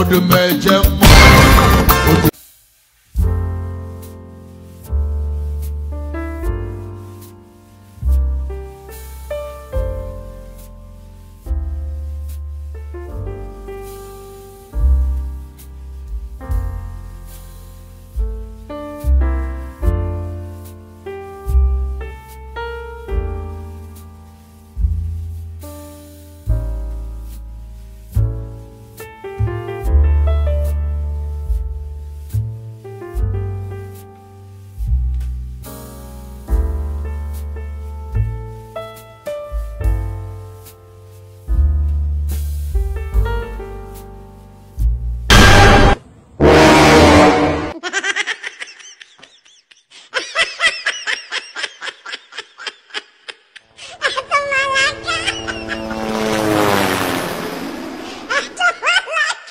odò mẹ́jẹ mọ́.